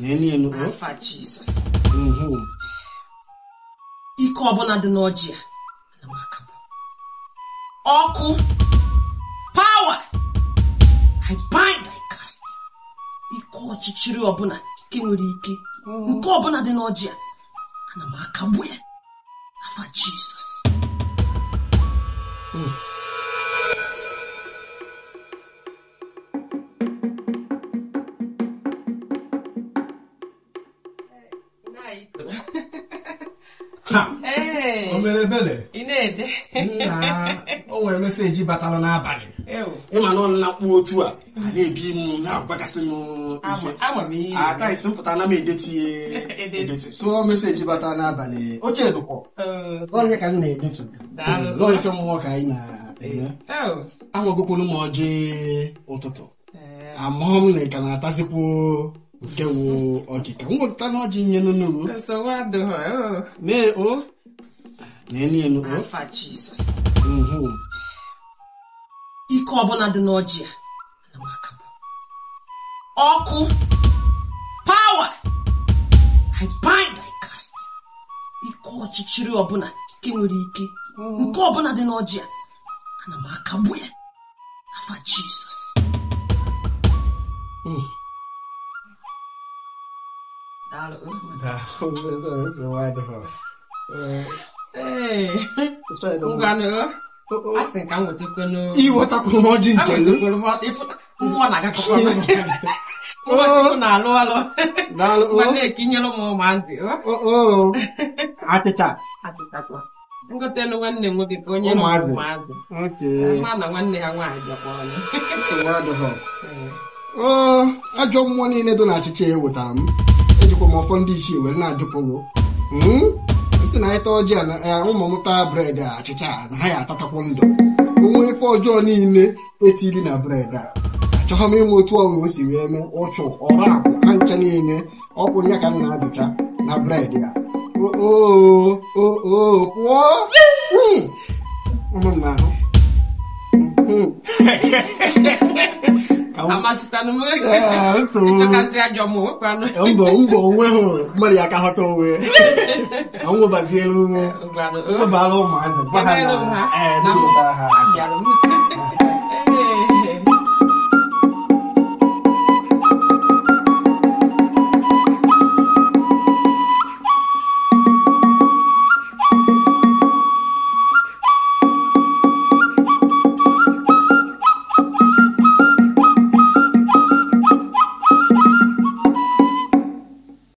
Nenino. Alpha Jesus. Mhm. Ike ọbụla dị n'ọjị a Power. I bind I cast. Ike ọchịchịrị ọbụla nke nwere ike. Nke ọbụla dị n'ọjị a Alpha uhum. Jesus. Hum. taa o mere ebere nna o nwere meseji batara n'abalị ịmanụ na akpụ otu a a na-ebi m na-agbagasị m ataisi mpụta ah, na m edetu ihe edetu tụọ meseji batara n'abalị oche dụkwọ oh. onye ka m na-edetu n'ofe mmụọ ka anyị na agwagokwunu m ọjị ụtụtụ eh. amụọ m na ịka na-atazikwo nke woo ọkịka mwepụta na ọjị nye n'ugwu mee o na-enu o uhu ike ọbụla dị n'ọjị ya ọkụ pawa i bind i cast ike ọchịchịrị ọbụla ike nwere ike mm. nke ọbụla dị n'ọjị ya ana m akagbu ya afa jizọs 大陆，大陆那人是歪的哈。哎，我干了。a sị ka m wetakwa n'o iwetakwa m ọdị nke gị nwa na agakọkwa m na-alụ alụ ma na-ekinyere m ụmụazị achịcha achịchakwa ngotelu nwanne m nwoke ka onye ụmụazị ma na nwanne ha nwaanyị bịakwa ọnụ ajọ mmụọ niile dị na achịcha ewetara m ejikwa m ọfọ ndị ichie were na-ajụpụgo hmm? si na ịta ọjị a eh, ụmụ m taa bred a achịcha na ha ya atatakwu ndụ onwe ife ọjọọ niile etiri na bred a achọghọ m ịma otu ọgụgụ si wee mee ụchụ ọrụ akụ ha ncha niile ọkwụ ya ka m na-ajụcha na bred ya pụọ ahụ mbọ mbọ onwe hụ mmadụ ya aka ghọta onwe anwụbaziere ume ụbara ụmụazụ gwa ha na ha